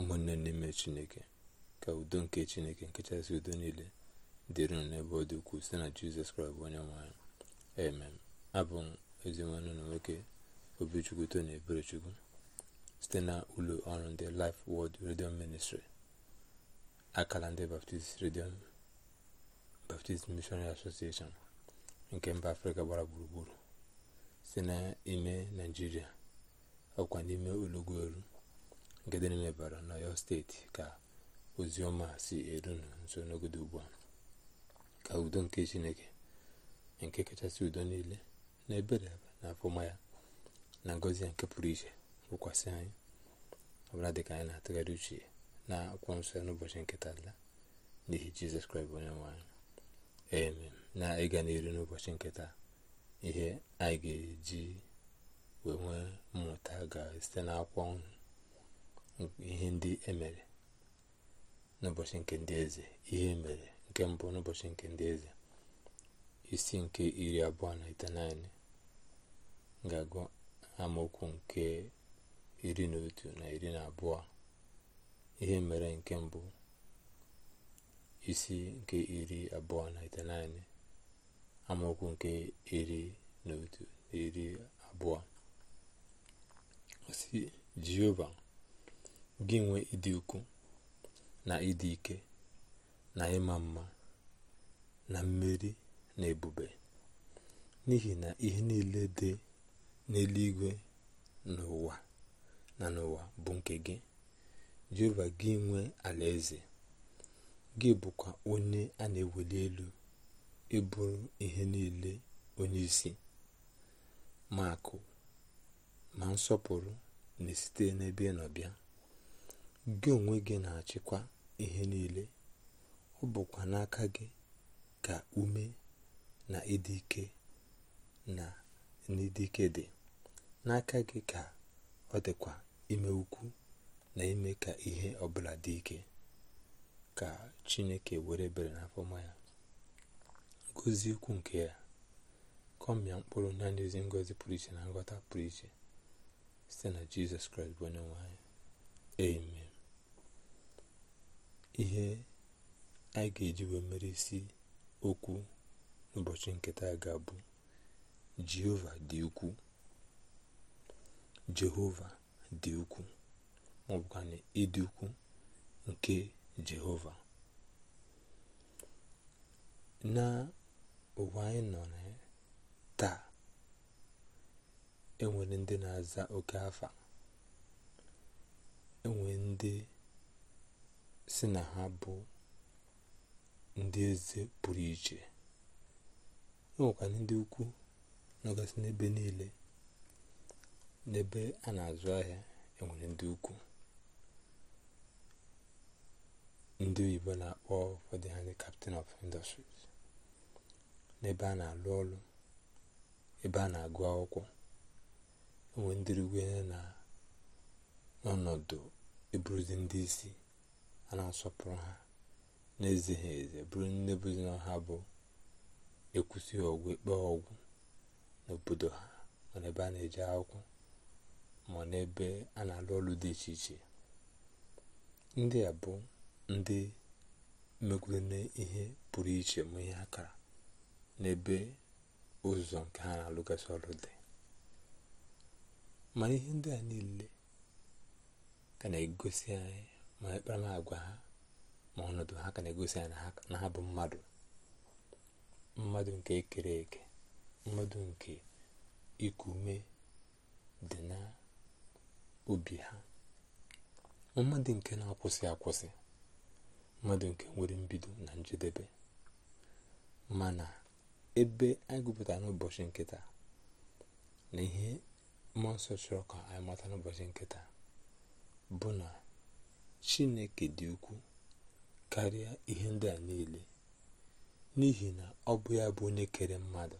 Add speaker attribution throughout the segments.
Speaker 1: ụmụnne n'ime chineke ka udo nke chineke nkechasị udo niile dịrị n'ebe ọ dị ukwuu site na jizọs kraịst bụ onye nwanyị amen abụ m ezinwanne na nwoke obichukwu tony eberechukwu site na ụlọ ọrụ ndị Life world Radio Ministry akala ndị Baptist Radio Baptist Missionary Association nke mba afrịka gbara gburugburu site n'ime naijiria ọkwa n'ime ụlọgwuelu nke dị n'elebara n'ọyọ steeti ka ozioma si eru nso n'ogodo ugbu a ka udo nke chineke nke kachasị udo niile na ebere na afọma ya na ngozi ya nke pụrụ iche wụkwasị anyị ọbụla dịka anyị na-atụgharị uche na akwụkwọ nsọ ya n'ụbọchị nketa tala n'ihi jizọs kraịst onye nwanyị eme na ịga n'elu n'ụbọchị nketa ihe anyị ga-eji wee nwee mmụta ga-esite n'akwụkwọ ihe ndị emere n'ụbọchị nke ndị eze ihe e mere nke mbụ n'ụbọchị nke ndị eze isi nke iri abụọ na itenaine ga-agụ amaokwu nke iri na otu na iri na abụọ ihe e mere nke mbụ isi nke iri abụọ na itenaine amaokwu nke iri na otu na iri abụọ si jehova gị nwee ịdị ukwu na ịdị ike na ịma mma na mmeri na ebube n'ihi na ihe niile dị n'eluigwe n'ụwa na n'ụwa bụ nke gị jehova gị nwee alaeze gị bụkwa onye a na-eweli elu ịbụrụ ihe niile onye isi ma akụ ma nsọpụrụ na-esite n'ebe ị nọ bịa gị onwe gị na-achịkwa ihe niile ọ bụkwa n'aka gị ka ume na ịdị ike na n'ịdị dị n'aka gị ka ọ dịkwa ime ukwu na ime ka ihe ọbụla dị ike ka chineke were bere n'afọma ya ngozi ukwu nke ya kọmịa mkpụrụ na n'ezi ngozi pụrụ iche na nghọta pụrụ iche site na jizọs kraịst bụ onye nwanyị ihe anyị ga-eji wee mere isi okwu n'ụbọchị nketa ga-abụ jehova dị ukwu jehova dị ukwuu ma ọ bụkwa na ịdị ukwuu nke jehova na ụwa anyị nọ na taa enwere ndị na-aza oke afa enwere ndị si na ha bụ ndị eze pụrụ iche enwekwara ndị ukwu nọgasị n'ebe niile n'ebe a na-azụ ahịa enwere ndị ukwu ndị oyibo na-akpọ ụfọdụ ha ndị captain of industries n'ebe a na-alụ ọrụ ebe a na-agụ akwụkwọ enwe ndị ya na n'ọnọdụ eburuzi ndị isi a na-asọpụrụ ha e na eze ezi bụrụ nne bụzina ha bụ ekwusi ọgwụ ikpe ọgwụ n'obodo ha nọ n'ebe a na-eje akwụkwọ ma n'ebe a na-alụ ọrụ dị iche iche ndị a bụ ndị megwurune ihe pụrụ iche ma ihe akara n'ebe ụzọ nke ha na-alụgasị ọrụ dị mana ihe ndị a niile ka na-egosi anyị ma agwa ha ma ọnọdụ ha ka na-egosi ya na ha bụ mmadụ mmadụ nke ekere eke mmadụ nke iku ume dị na obi ha mmadụ nke na-akwụsị akwụsị mmadụ nke nwere mbido na njedebe mana ebe anyị gụpụta n'ụbọchị nkịta na ihe mmụọ nsọ chọrọ ka anyị mata n'ụbọchị nkịta bụ na chineke dị ukwuu karịa ihe ndị a niile n'ihi na ọ bụ ya bụ onye kere mmadụ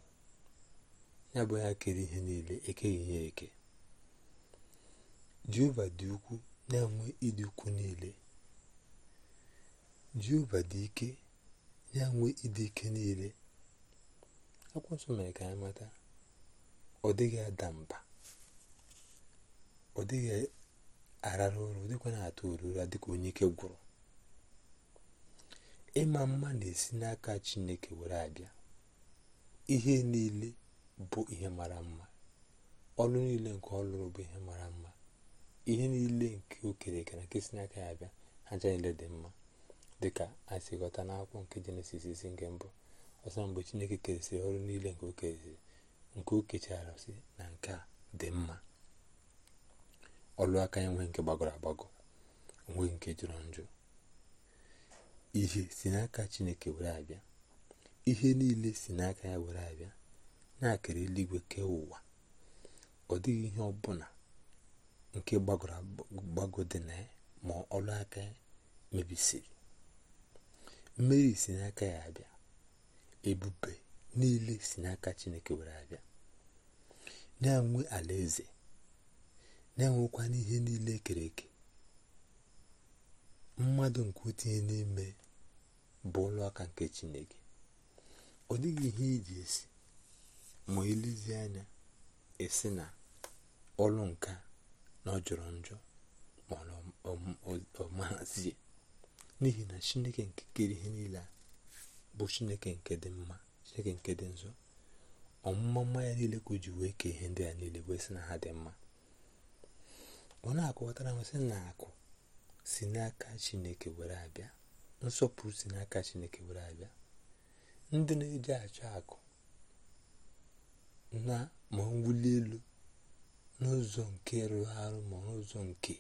Speaker 1: ya bụ ya kere ihe niile ekeghị ya eke jehova dị ukwu na-enwe ịdị ukwu niile jehova dị ike na-enwe ịdị ike niile akwụkwọ mere ka anyị mata ọ dịghị ada mba ọ dịghị arara ụrụ dịkwa na-atụ ụra dịka onye ike gwụrụ ịma mma na-esi n'aka chineke were abịa ihe niile bụ ihe mara mma ọrụ niile nke ọ bụ ihe mara mma ihe niile nke okere na nke si n'aka ya abịa aja ncha niile dị mma dịka anyị na akwụkwọ n'akwụkwọ nke jenesis isi nke mbụ ọsọ mgbe chineke keresịrị ọrụ niile nke o nke o kechara na nke a dị mma ọlụ aka ya nwee nke gbagọrọ agbagọ nwee nke jụrụ njụ ihe si n'aka chineke were abịa ihe niile si n'aka ya were abịa na-akara eluigwe kee ụwa ọ dịghị ihe ọbụla nke gbagọrọ agbagọ dị na ya ma ọlụ aka ya mebisiri mmeri si n'aka ya abịa ebube niile si n'aka chineke were abịa na-enwe eze. na-enwekwa n'ihe niile kere eke mmadụ nke utinye n'ime bụ ụlọ aka nke chineke ọ dịghị ihe iji e esi ma elezi anya esi na ọlụ nka na ọ jọrọ njọ mana n'ihi na chineke nke kere ihe niile a bụ chineke nke dị mma chineke nke dị nzọ ọmụma mma ya niile ka o ji wee kee ihe ndị a niile wee sị na ha dị mma ọ na-akọwatara m sị na akụ si n'aka chineke were abịa nsọpụrụ si n'aka chineke were abịa ndị na-eji achọ akụ na ma mwuli elu n'ụzọ nke rụrụ arụ ma n'ụzọ nke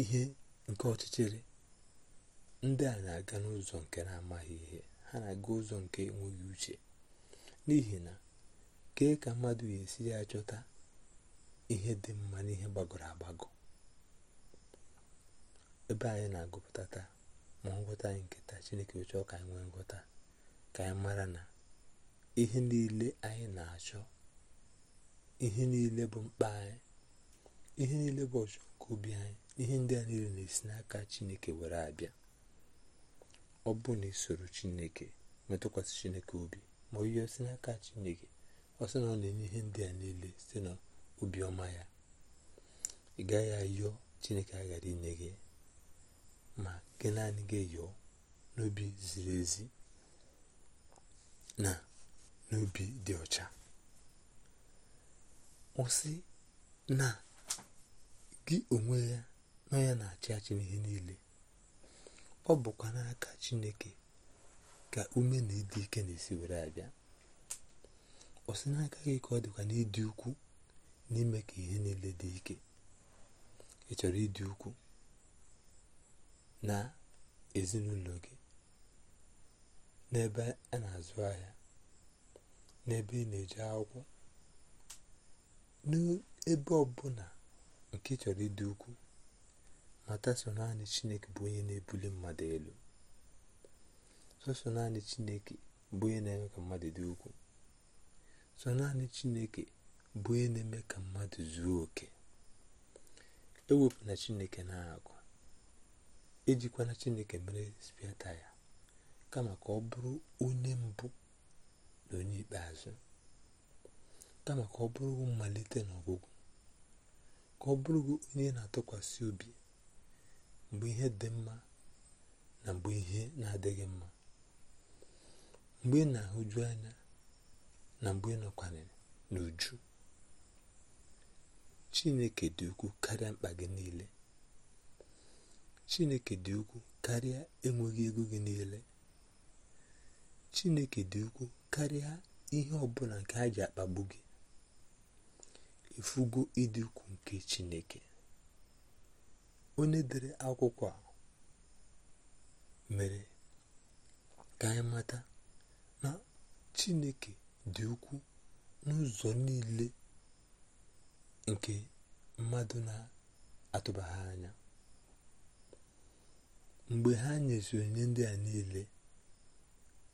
Speaker 1: ihe nke ọchịchịrị ndị a na-aga n'ụzọ nke na-amaghị ihe ha na-aga ụzọ nke enweghị uche n'ihi na Kee ka mmadụ ga-esi ya chọta ihe dị mma n'ihe gbagọrọ agbagọ ebe anyị na-agụpụta taa ma nghọta anyị nke taa chineke chọọ ka anyị nwee ngwọta ka anyị mara na ihe niile anyị na-achọ ihe niile bụ mkpa anyị ihe niile bụ ọchọ nke obi anyị ihe ndị a niile na-esi n'aka chineke were abịa ọ bụ na isoro chineke metụkwasị chineke obi ma ọ osi si n'aka chineke ọ na ọ na-enye ihe ndị a niile site na obiọma ya ị gaghị ayọ chineke aghara inye gị ma gị naanị gị yọọ n'obi ziri ezi na n'obi dị ọcha ọ na gị onwe ya nọ ya na-achị achị n'ihe niile ọ bụkwa n'aka chineke ka ume na ịdị ike na-esi were abịa ọ sị n'aka gị ka ọ dịkwa n'ịdị ukwu n'ime ka ihe niile dị ike ị chọrọ ịdị ukwu na ezinụlọ gị n'ebe a na-azụ ahịa n'ebe ị na-eje akwụkwọ n'ebe ọbụla nke ị chọrọ ịdị ukwu mata so naanị chineke bụ onye na-ebuli mmadụ elu sọsọ naanị chineke bụ onye na-eme ka mmadụ dị ukwuu. so naanị chineke bụ onye na-eme ka mmadụ zuo oke ewepụna chineke na-agụ ejikwana chineke mere spiata ya kama ka ọ bụrụ onye mbụ na onye ikpeazụ kama ka ọ bụrụ mmalite na ọgwụgwụ ka ọ bụrụ onye na-atụkwasị obi mgbe ihe dị mma na mgbe ihe na-adịghị mma mgbe ị na-ahụju anya na mgbe ị n'uju chineke dị ukwu karịa mkpa gị niile chineke dị ukwu karịa enweghị ego gị niile chineke dị ukwu karịa ihe ọbụla nke a ji akpagbu gị ifugo ịdị ukwu nke chineke onye dere akwụkwọ a mere ka anyị mata na chineke dị ukwuu n'ụzọ niile nke mmadụ na-atụbaghị anya mgbe ha nyezi onye ndị a niile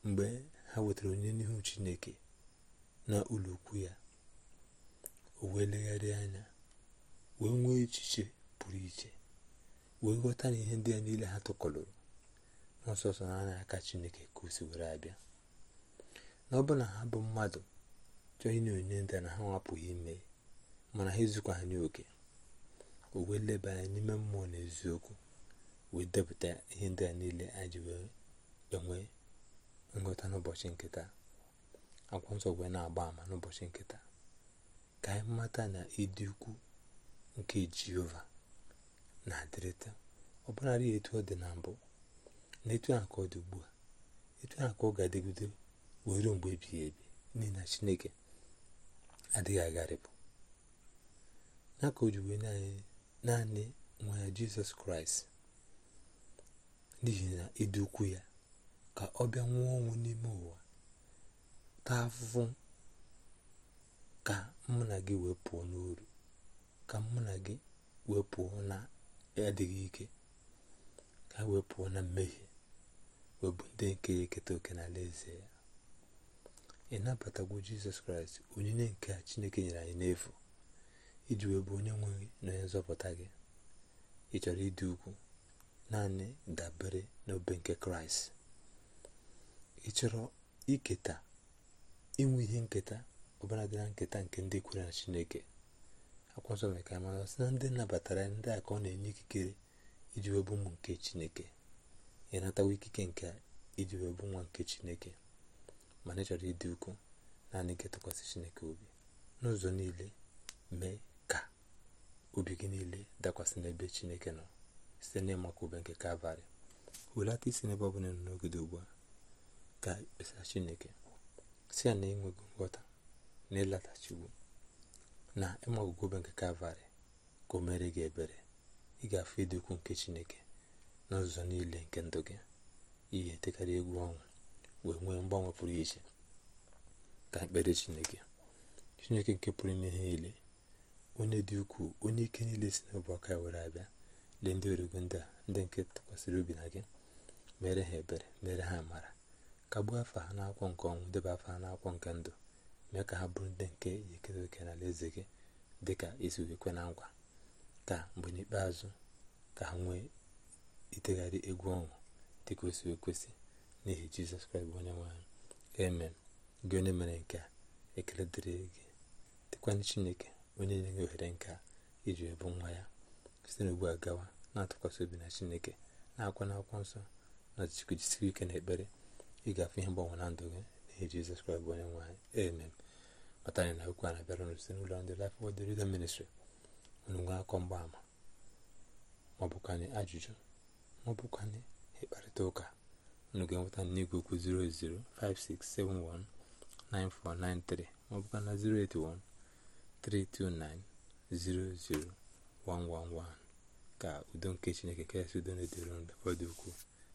Speaker 1: mgbe ha wetara onye n'ihu chineke na ụlọ ukwu ya o wee legharị anya wee nwee echiche pụrụ iche wee ghọta na ihe ndị a niile ha tụkọlụrụ ọsọsọ na anya aka chineke ka o si were abịa na ọ bụrụ ha bụ mmadụ chọọ inye onye nta na ha nwapụghị ime mana ha ezukwa ha n'oke o wee leba anya n'ime mmụọ na eziokwu wee depụta ihe ndị a niile anyị wee enwe nghọta n'ụbọchị nkịta akwụkwọ nsọ wee na-agba ama n'ụbọchị nkịta ka anyị mata na ịdị ukwu nke jehova na-adịrịta ọ bụlarị etu ọ dị na mbụ na etu ahụ ka ọ dị ugbu a etu ahụ ka ọ ga-adịgide wee mgbe ebighị ebi n'ihi na chineke adịghị agharịpụ n'aka o naanị naanị nwa ya jizọs kraịst n'ihi na ịdị e ukwu ya ka ọ bịa nwụọ ọnwụ n'ime ụwa taa afụfụ ka mụ gị wee pụọ ka mụ gị wee pụọ na adịghị ike ka wee pụọ na mmehie wee ndị nke ya eketa oke n'ala eze ya ị nabatagwo jizọs kraịst onyinye nke chineke nyere anyị n'efu iji wee bụ onye nwe na onye nzọpụta gị ị chọrọ ịdị ugwu naanị dabere n'obe nke kraịst ị chọrọ iketa inwe ihe nketa ọbara dị na nketa nke ndị kwere na chineke akwa nsọ mere ka anyị mara sị na ndị nabatara ndị a ka ọ na-enye ikikere iji wee ụmụ nke chineke ị natawa ikike nke iji wee nwa nke chineke ma na ịchọrọ ịdị naanị nke tụkwasị chineke obi n'ụzọ niile mee ka obi gị niile dakwasị n'ebe chineke nọ site n'ịmaka ube nke kalvarị hulata isi n'ebe ọ bụla nọ n'ogide ugbu a ka e kpesara chineke si ya na enweghị nghọta na ịlatachiwu na ịmagụgụ ube nke kalvarị ka o mere gị ebere ị ga-afụ ịdị ukwuu nke chineke n'ụzọ niile nke ndụ gị ị ga egwu ọnwụ wee nwee mgbanwe pụrụ iche ka ekpere chineke chineke nke pụrụ ime ihe niile onye dị ukwuu onye ike niile si n'ọbụ aka were abịa lee ndị origo ndị a ndị nke tụkwasịrị obi na gị mere ha ebere mere ha amara kagbuo afa ha n'akwụkwọ nke ọnwụ debe afa ha n'akwụkwọ nke ndụ mee ka ha bụrụ ndị nke ekere oke n'ala eze gị dị ka isi ekwe na nkwa ka mgbe n'ikpeazụ ka ha nwee itegharị egwu ọṅụ dịka o ekwesị n'ihi jizọs kraịst bụ onye nwanyị amen gị onye mere nke a ekele dịrị gị dịkwana chineke onye nye gị ohere nke iji ebu nwa ya site n'ugbu a gawa na-atụkwasị obi na chineke na-akwa akwụkwọ nsọ na jisiri ike na ekpere ịgafe ihe mgbanwe na ndụ gị n'ihi jizọs kraịst bụ onye nwaanyị amen mata anyị na okwu a na-abịara ụnụ site n'ụlọ ndị Life Word Redemption Ministry ụnụ nwee akọ mgbaama maọbụkwanye ajụjụ maọbụkwanye ịkparịta ụka unu ga-enweta n'igwe okwu 0056719493 maọbụka na 08132900111 ka udo nke chineke kasị udo na-edere ndụ fọdụ ukwu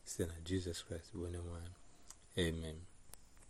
Speaker 1: site na jizọs kraịst bụ onye nwe amen